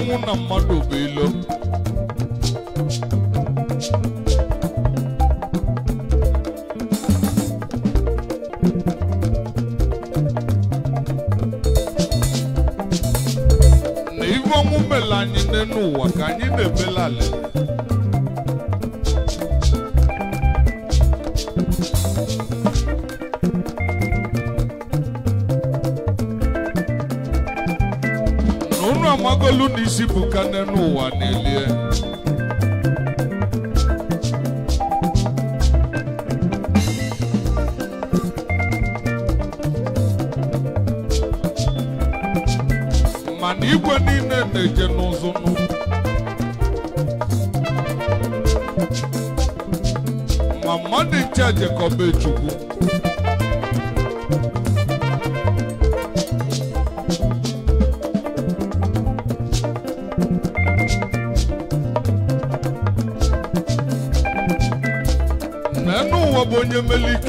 ọnwụ na mmadụ bụ ilo na ihu ọnwụ mela anyị n'elu ụwa ka anyị na-ebelalị ogolu n'isi buka n'enu ụwa n'elie mana igwe niile na-eje n'ụzụ ma mmadụ nche jekọba chukwu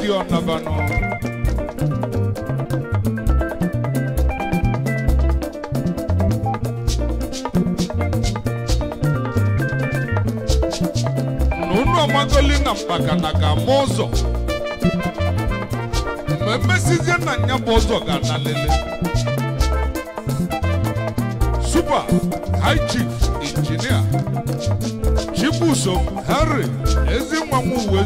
Dionna bano nunwa magoli na mpaka na ga mụzọ mgbe mmesizie na nya bụ ụzọ ga na lele super high chief injinia chibuso henry ezinwa nwa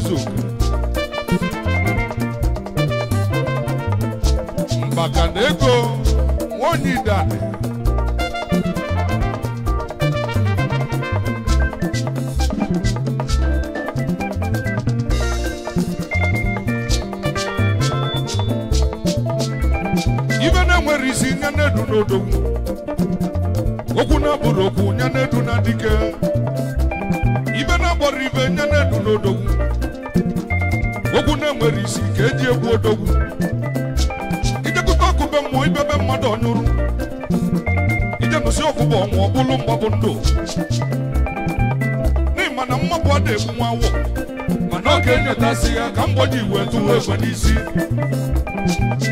wetasịa ka mgboji wetu egbe n'isi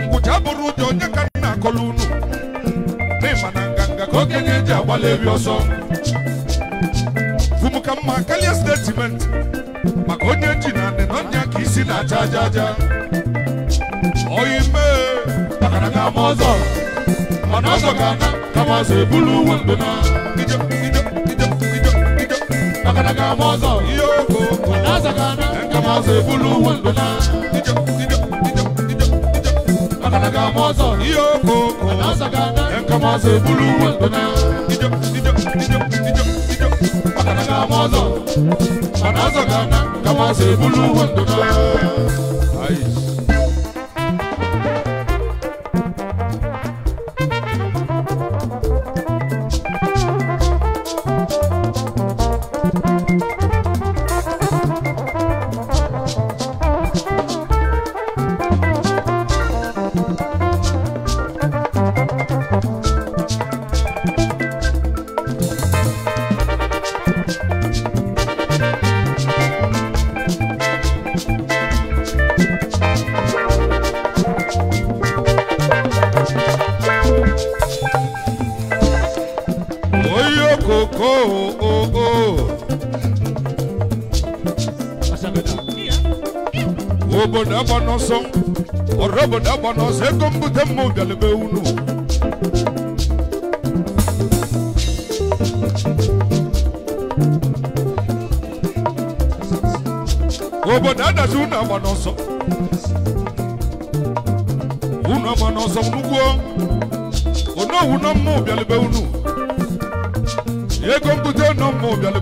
ngwụcha bụrụ ụjọ onye ka nna akọla unu n'ịma na nganga ka okenye ji agbalị eri ọsọ fum ka mma karịa stetimenti maka onye ji na ndịnọnya ka isi na-acha aja aja oyi mee takara ga ama ọzọ mana ọzọ ga-ana kama ọzọ uwe ndụ na kama se bulu wandona Akanaga mozo iyoko Anasaka dan kama se bulu wandona Akanaga mozo Anasaka dan kama se bulu wandona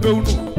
cabelo nu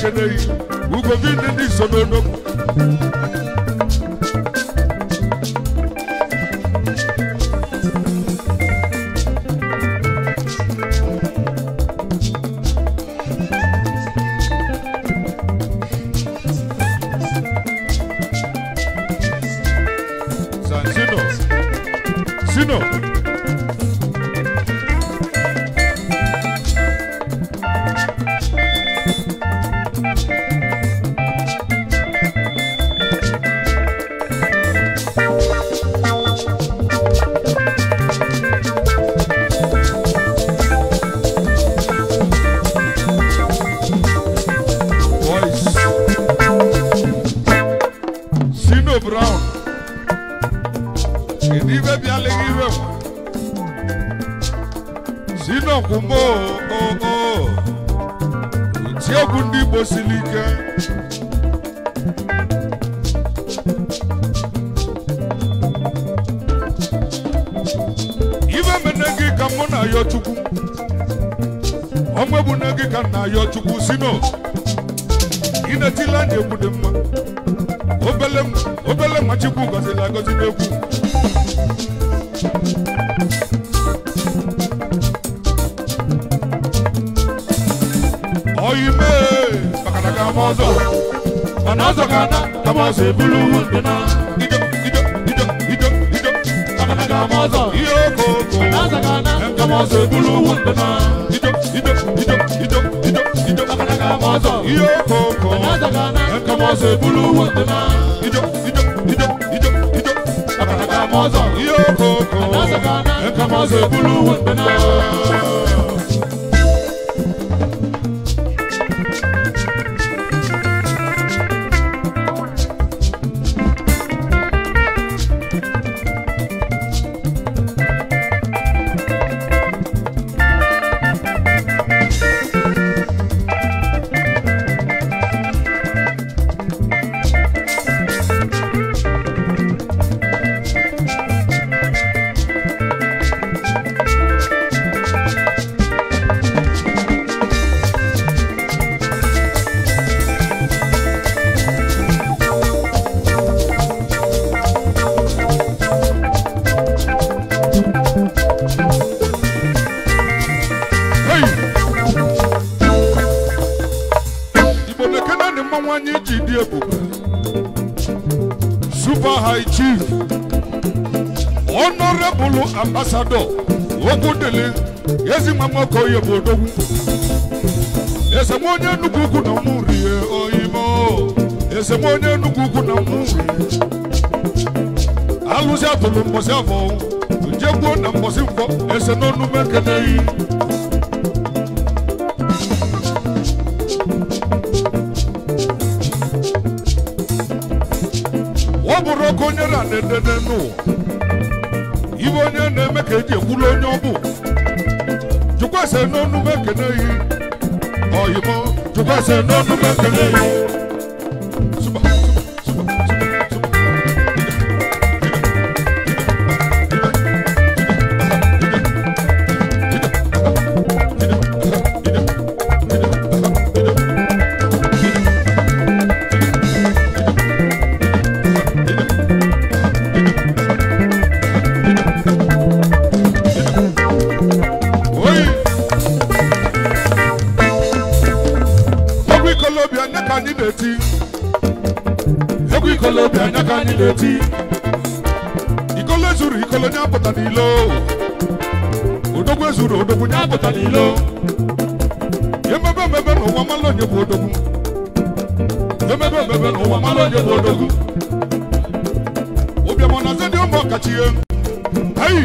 chenei ugo gị ndị so ọ bụrụ oke onye na-edede n'ụwa ibe onye na-eme ka eji ekwulu onye ọ bụ jụkwasị n'ọnụ mekene yi ọyịmọ jụkwasị n'ọnụ mekene yi deti ikole zuri ikole nyapota nilo odogwe zuri odogwe nyapota nilo yemebe mebe no wamalo nyepo odogu yemebe mebe no wamalo nyepo odogu obyamona zedi omo kachie hey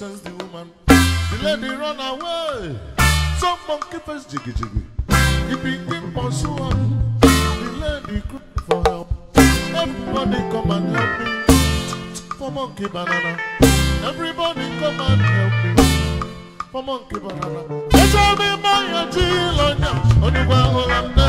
nonsense, the woman. The lady run away. Some monkey face jiggy jiggy. He begin pursue her. The lady cry for help. Everybody come and help me. For monkey banana. Everybody come and help me. For monkey banana. They tell me my auntie Lonya. Only one who I'm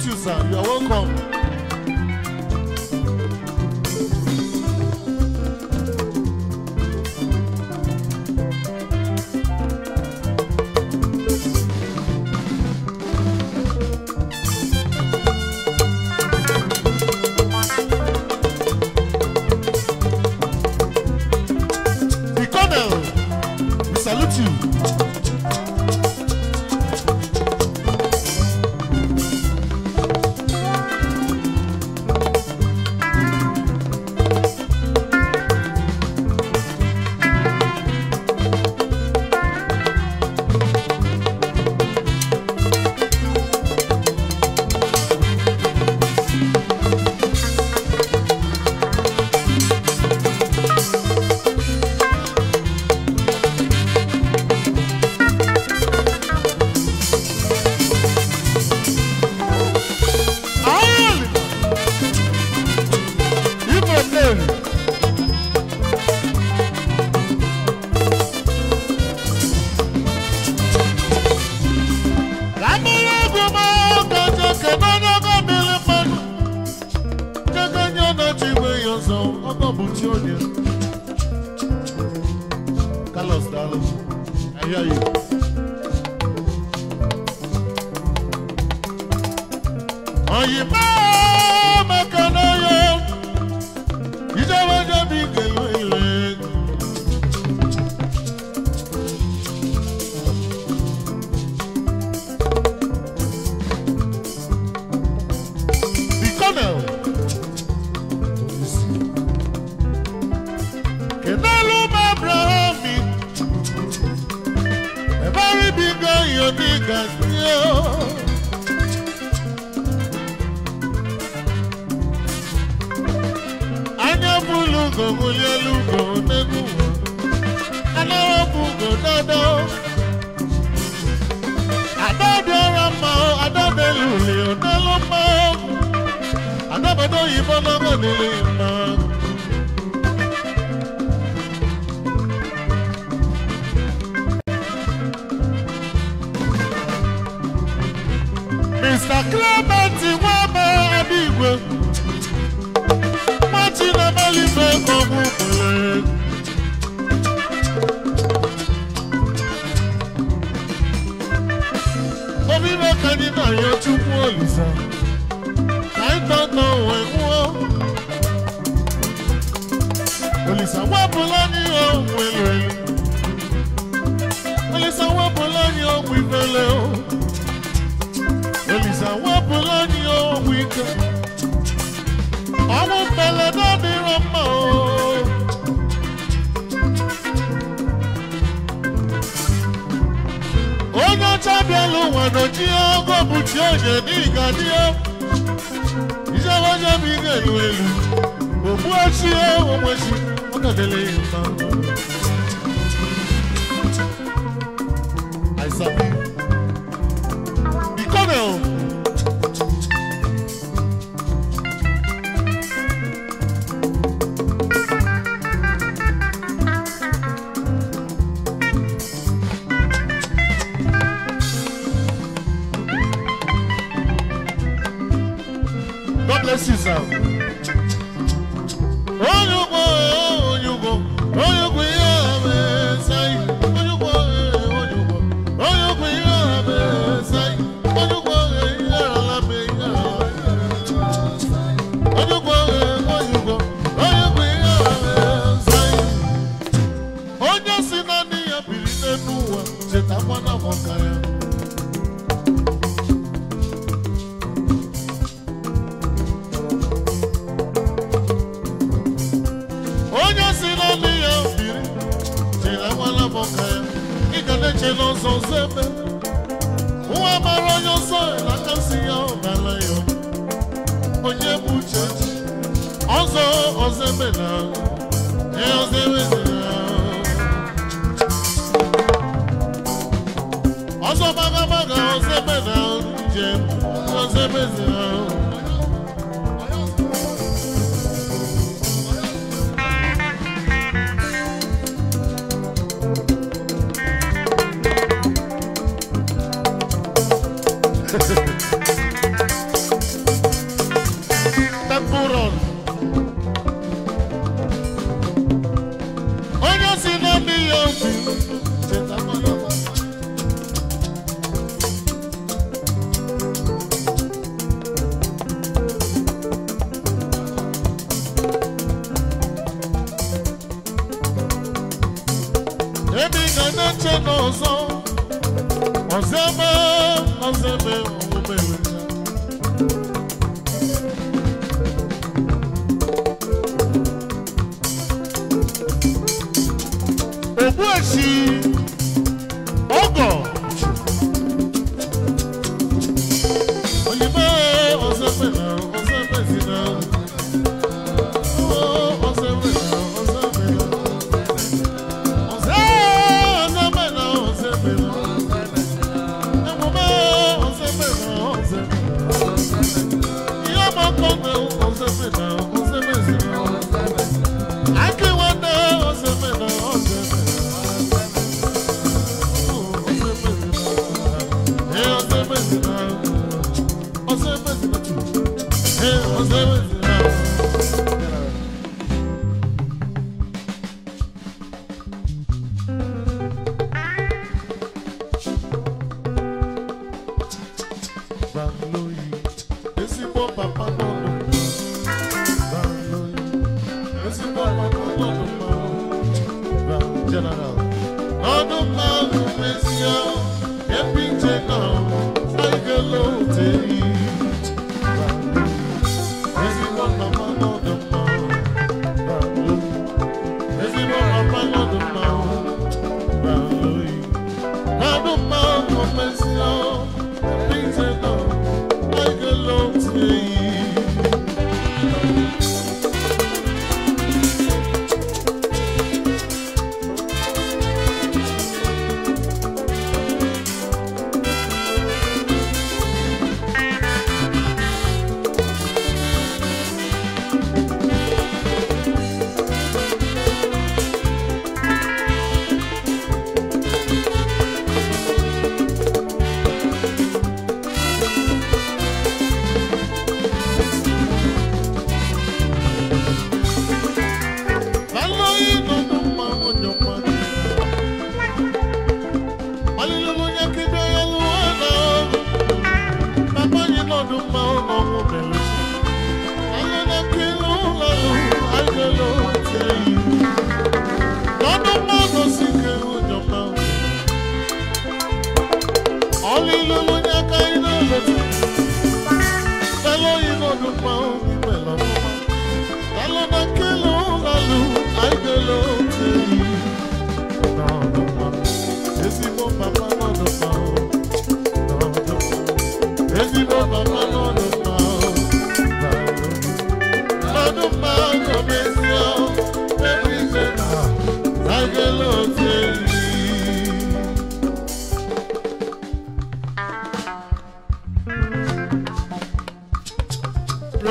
salute you, sir. You are welcome. ọ̀nà tí ó gòkù tí ó ṣe ní ìka tí ó iṣẹ́ wọ́n ṣe fi ń èlò èlò òkú ọtí ó òun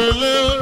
Hallelujah.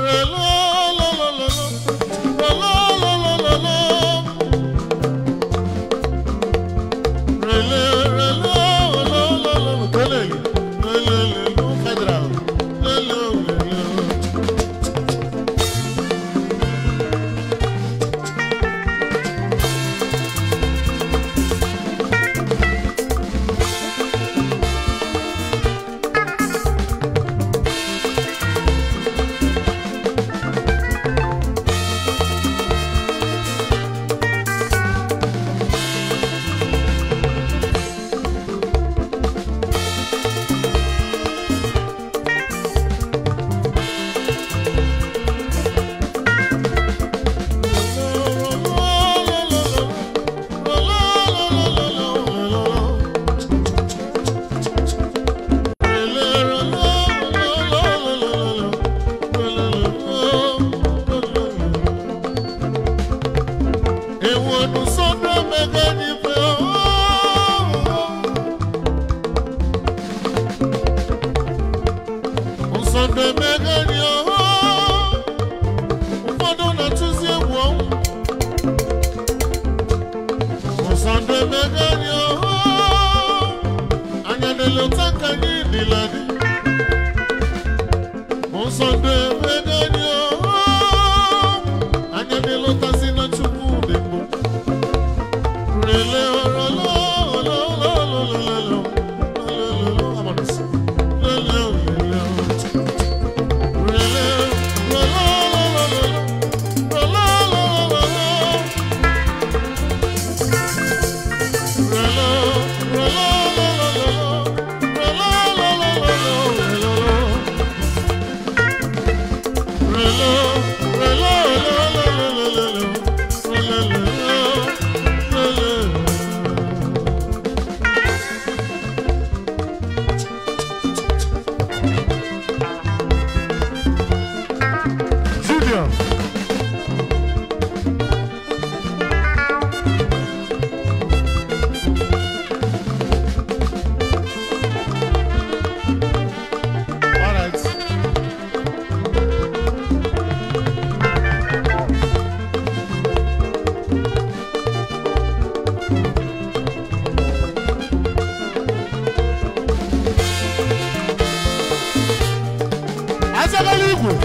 Zé Galigo.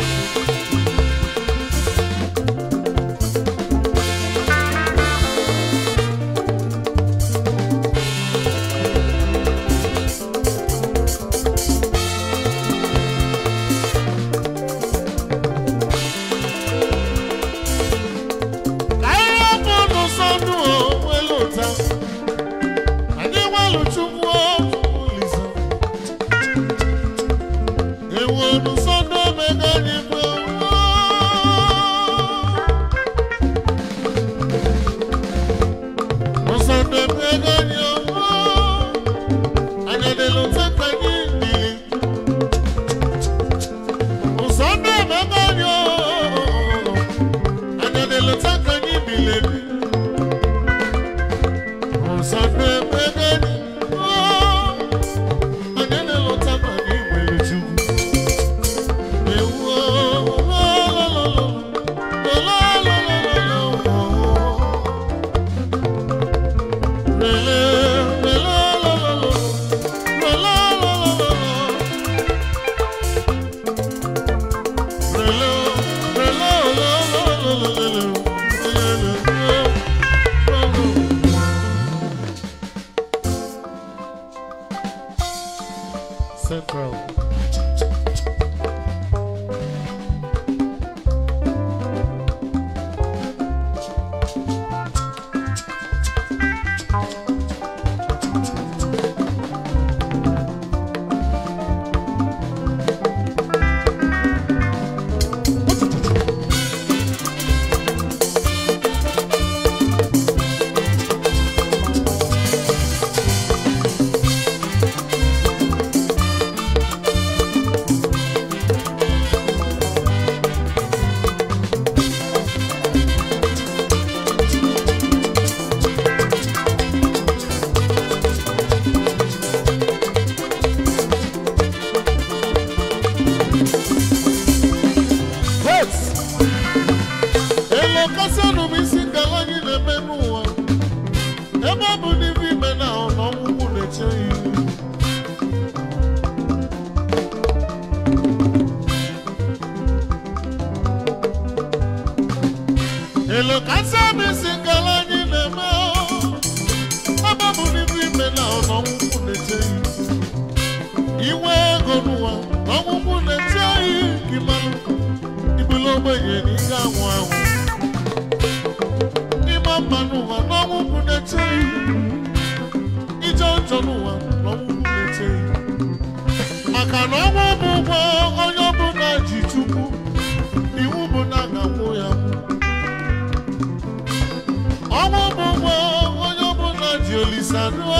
inwe ego n'ụwa ọgwụgwụ na-eti oyi gị mmanụ ibulu ogbenye na ike anwụ anwụ ịma mma n'ụwa na ọgwụgwụ na-eti oyi ije njọ n'ụwa na ọgwụgwụ na-eti oyi maka na ọnwụ bụ ụgwọ onye ọbụla ji tupu iwu bụ na a ga ya ọnwụ bụ ụgwọ onye ọbụla ji olisa dụọ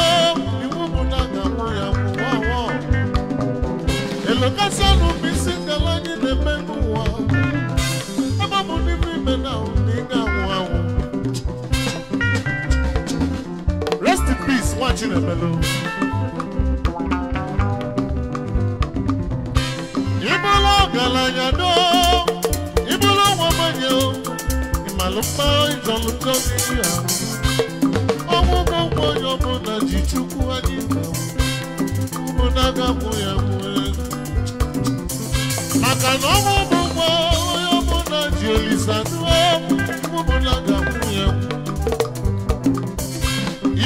na bụ isi anyị na-eme n'ụwa ebe ọ bụ n'ime ime na ị ga-anwụ anwụ rest in peace nwa Chinemelu ịbụla ọgaranya do ịbụla nwa bụ onye ji chukwu anyị na ụmụ na ya maka na ọmụ bụ nwa onye ọbụla ji olisa ọbụla ga-akwụnye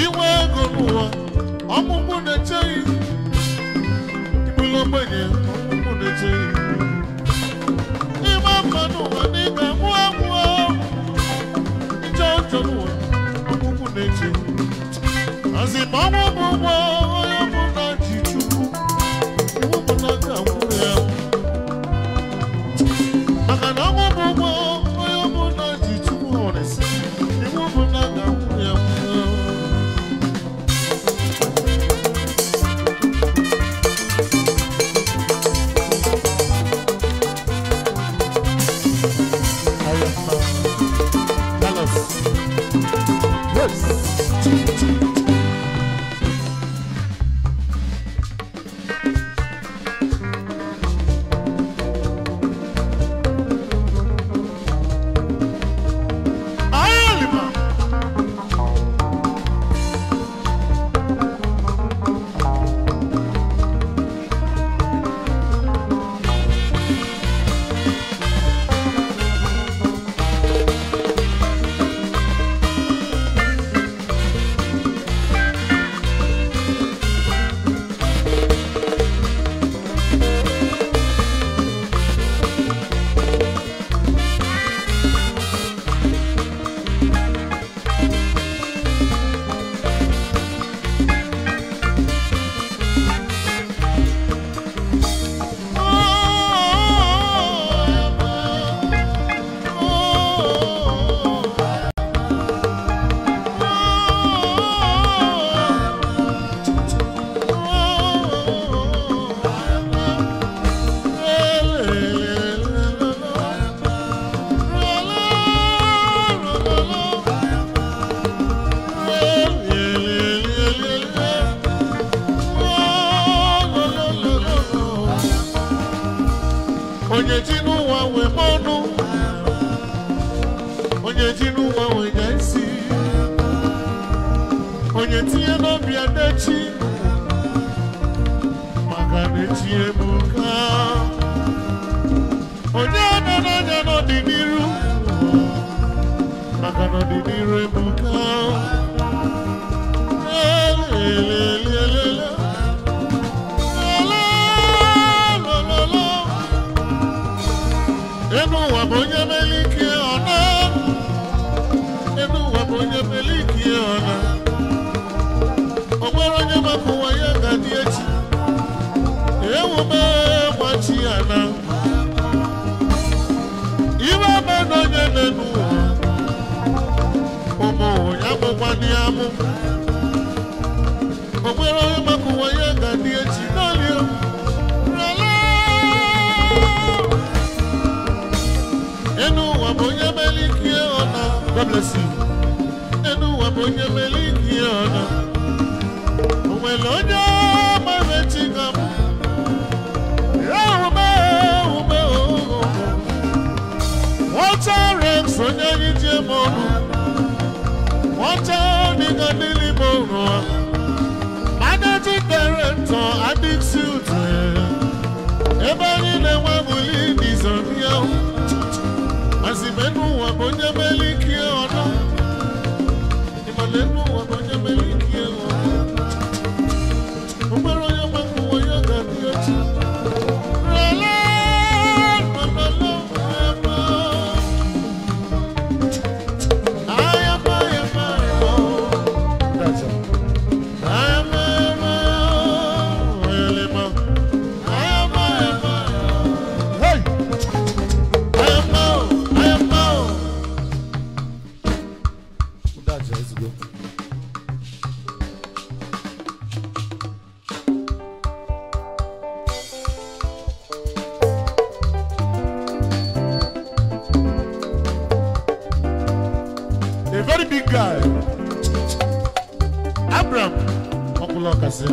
inwe ego n'ụwa ọmụmụ na-echeghị ịbụla ọmụmụ na-echeghị ịma mma n'ụwa na ịga mụọ ije ọjọ n'ụwa ọmụmụ na-eche guy Abraham ọkùnrin ọkàsí.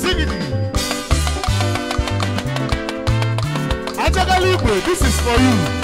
Singing. Ajagali this is for you.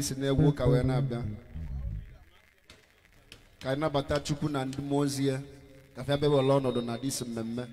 anyị na n'egwu ụka wee na-abịa ka anyị nabata Chukwu na ndị mmụọ ozi ya ka ọnọdụ na disi mmemme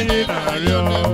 Adiós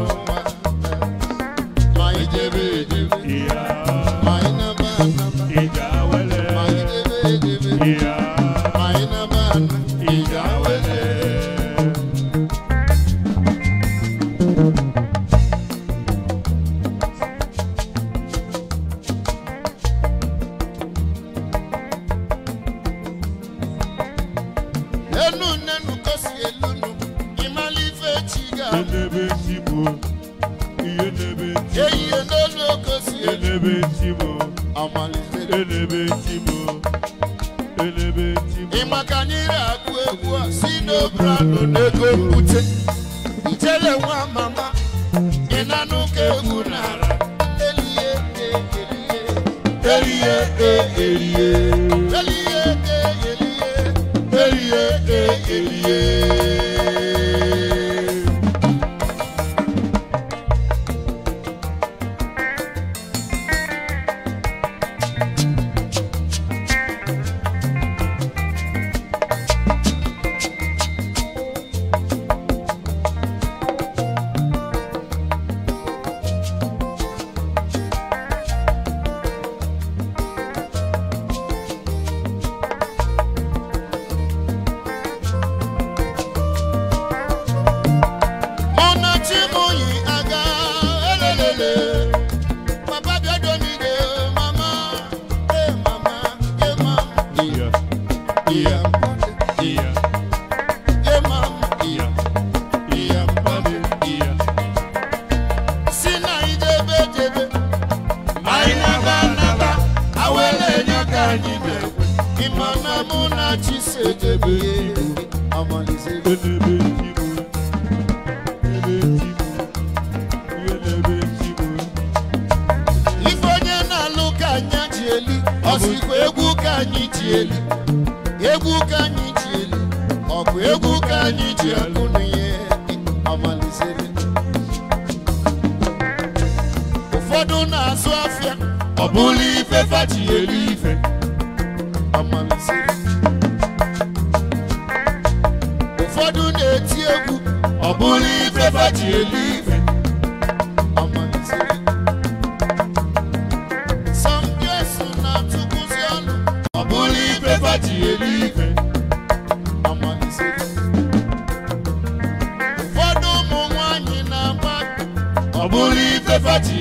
ọ bụrụ ife fati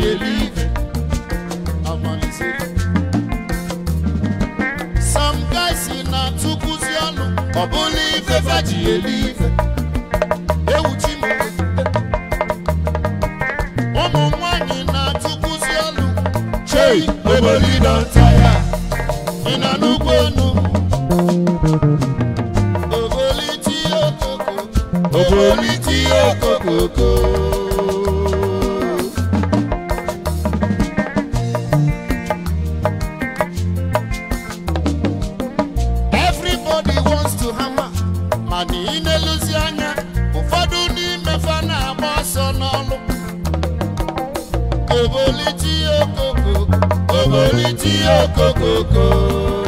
sam na tukwuzi ọnụ ọ bụrụ ife fati eluife ewuchi ụmụ nwanyị na ya ị na oboliti okoko oboliti tí ó kókókó.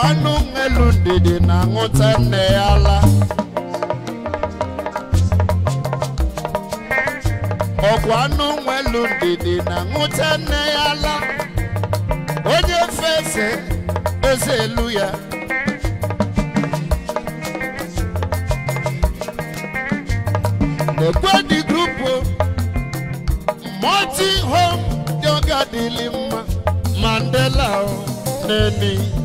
agwa anụ ndidi na-aṅụta nne ya ala ọgwa ndidi onye eze elu ya egwedi grupu multi home yoga dịlị mandela neni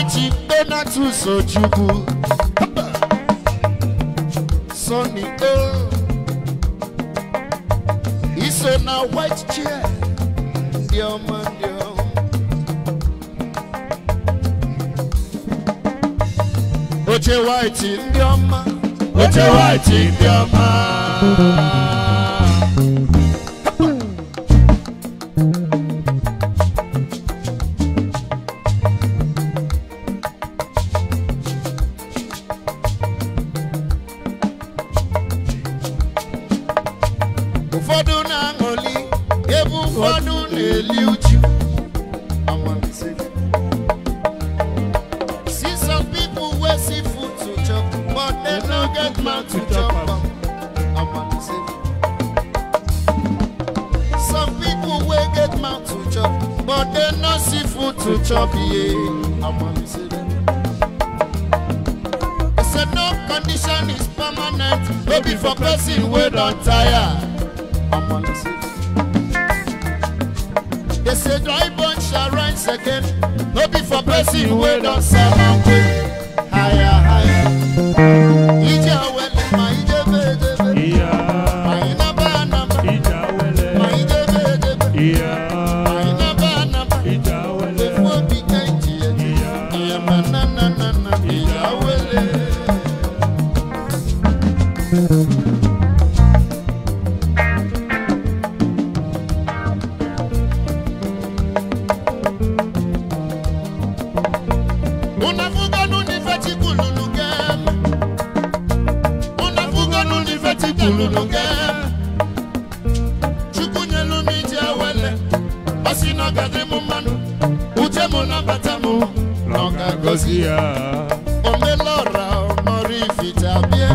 Alhaji Donatus Ojukwu Sonny O is on a white chair dear man dear Oche white in dear man Oche white in dear na batamu nọka gọzi ya onye lọra ọmọrị ificha bịa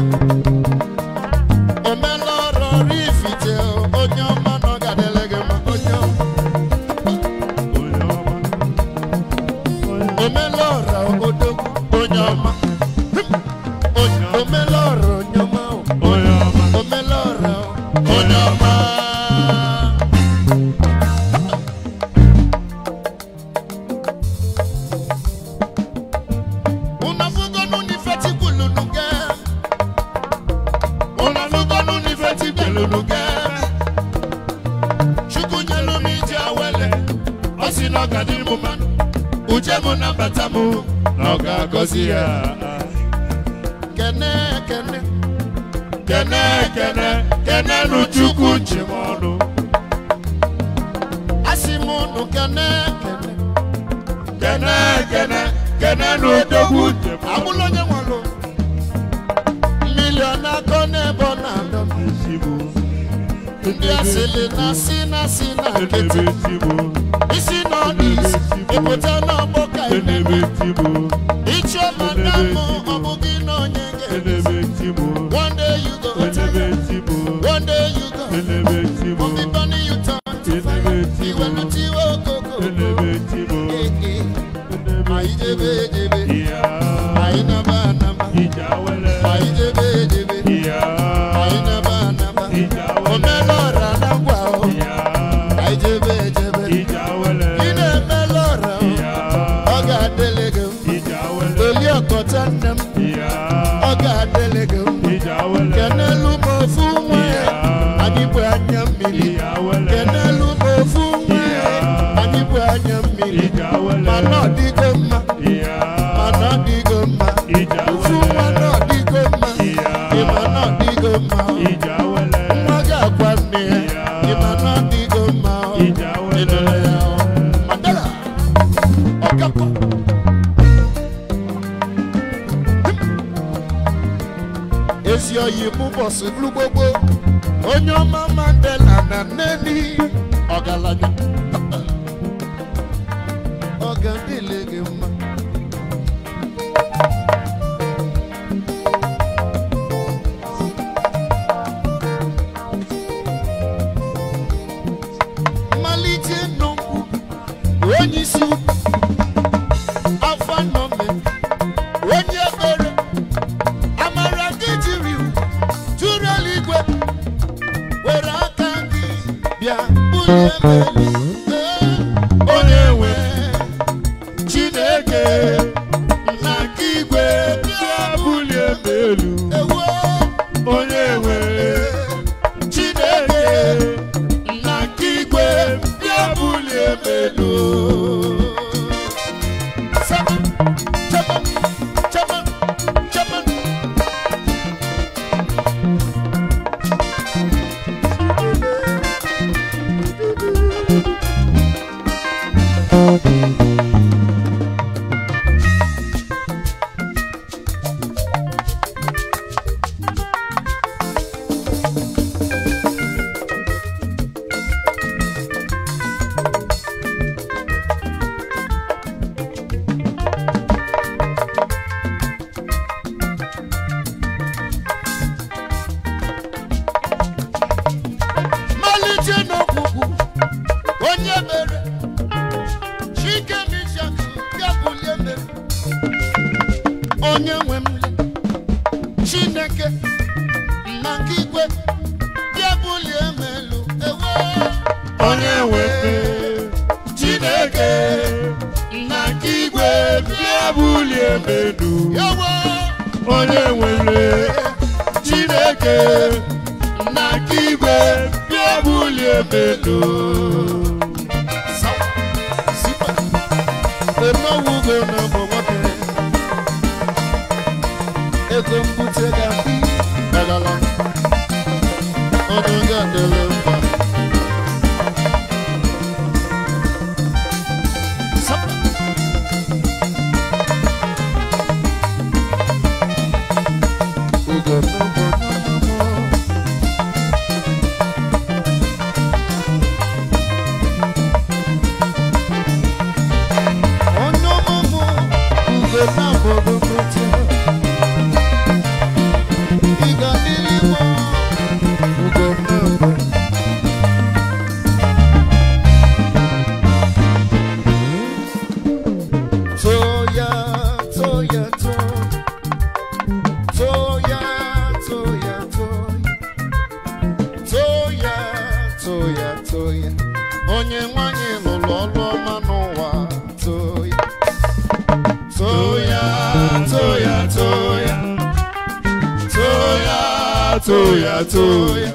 tuya tuya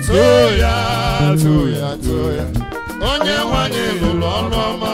tuya tuya tuya onye nwanyị lụrụ ọnụ ọma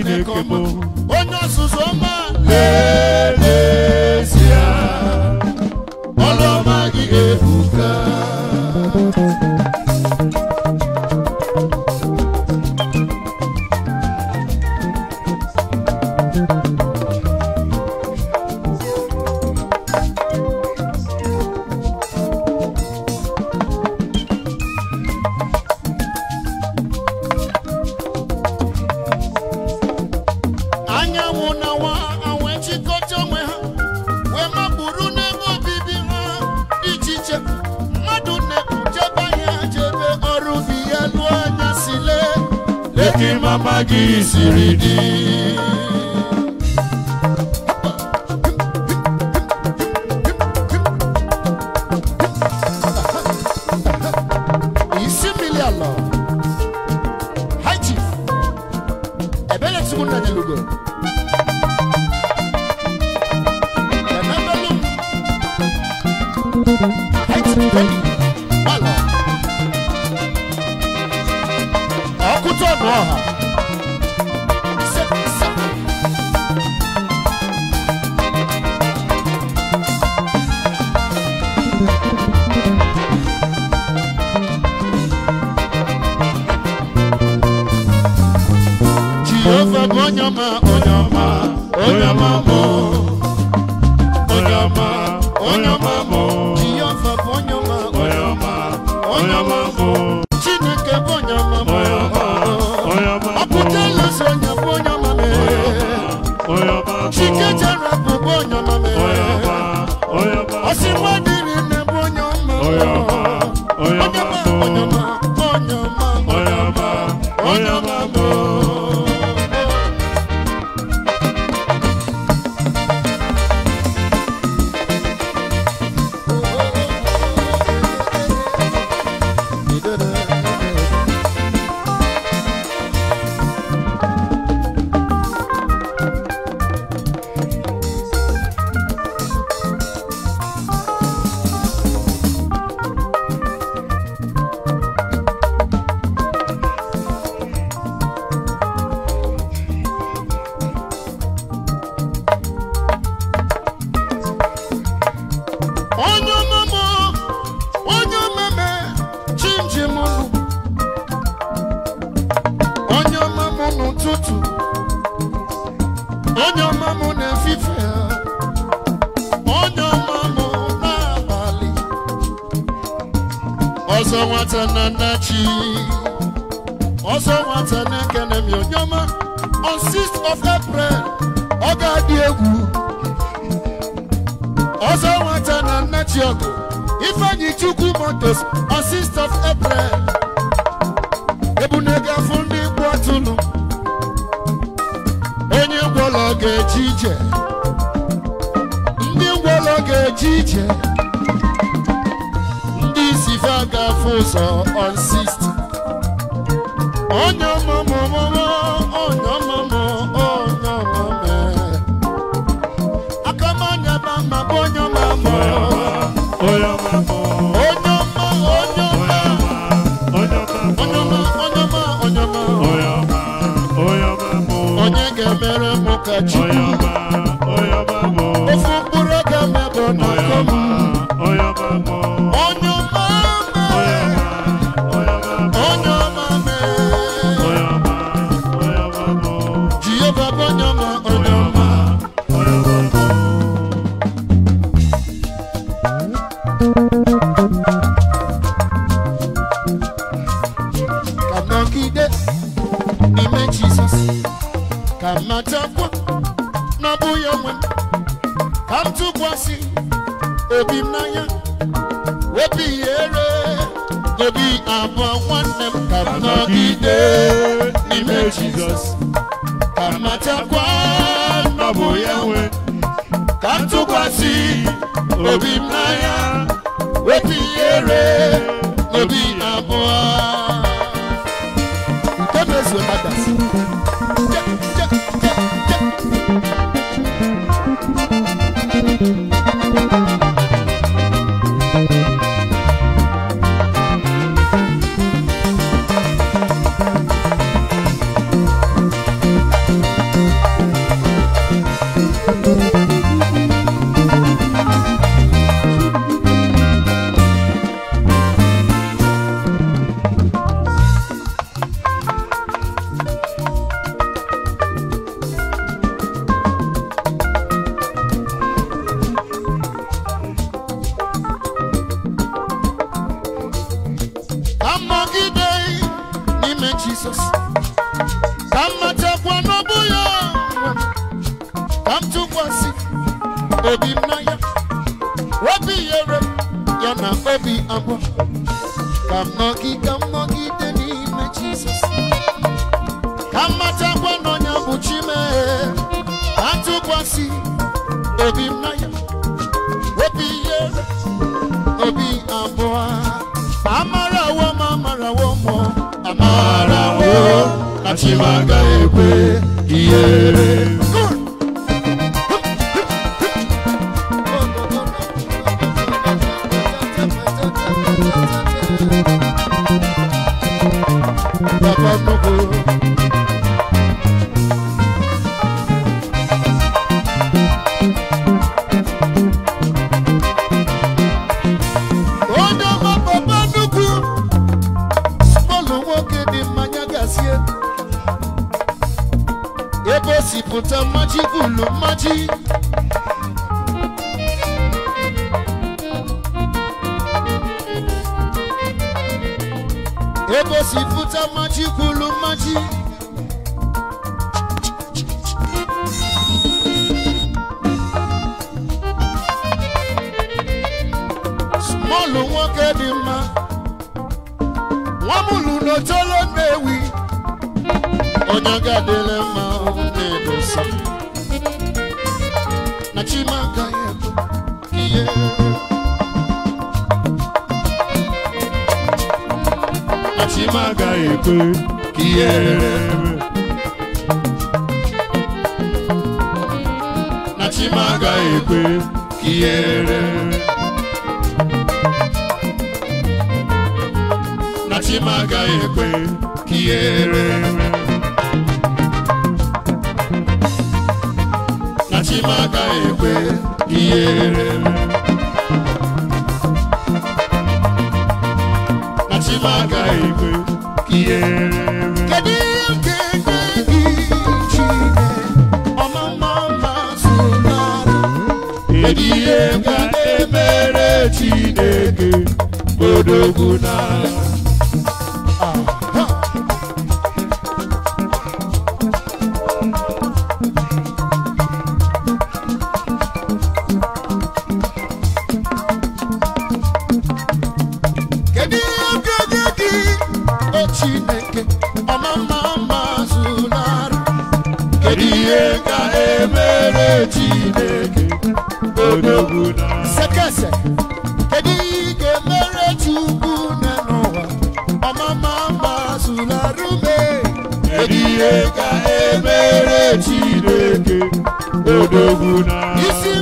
Chineke bụ onye ọzụzụ ọma onye ọmụmụ onye omeme chimchim unu onye ọmụmụ n'ụtụtụ onye ọmụmụ n'efife onye ọmụmụ n'abalị ọzọ nwata na nnachi ọzọ nwata na-ekene m onye ọma on 6th of April ọ ga-adị egwu ọzọ nwata na nne chiọgụ ifeanyi chukwu motos assist of april ebunega fụ ndị gbu atụnụ onye ga-eje ije ndị ngwọlọ ga-eje ije ndị isi fe ga-afụ ụzọ on onye ka mmadụ matakwa n'ọbụ ya nwe ka ntụkwasị tụkwasị obi m na ya obi yere ya na obi abụọ ka m nọgide ka m nọgide n'ime Jizọs ka mmadụ matakwa n'ọnya bụ Chimee ka ntụkwasị tụkwasị obi m na ya ti máa ń gbà yẹ ihe ka emere Chineke odogwu na sekese kedu ihe ga-emere Chukwu na n'ụwa ọmama gbazularume kedu ihe ka emere Chineke odogwu na isi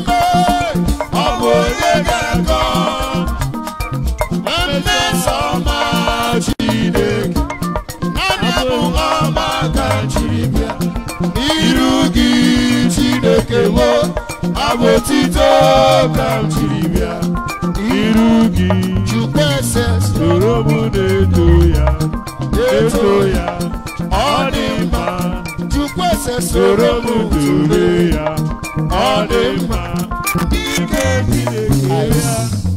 abụ otito ka m jiri bịa iru gị soro m na-eto ya eto ya ọ dị mma soro m dobe ya ọ dị mma ike dị na ya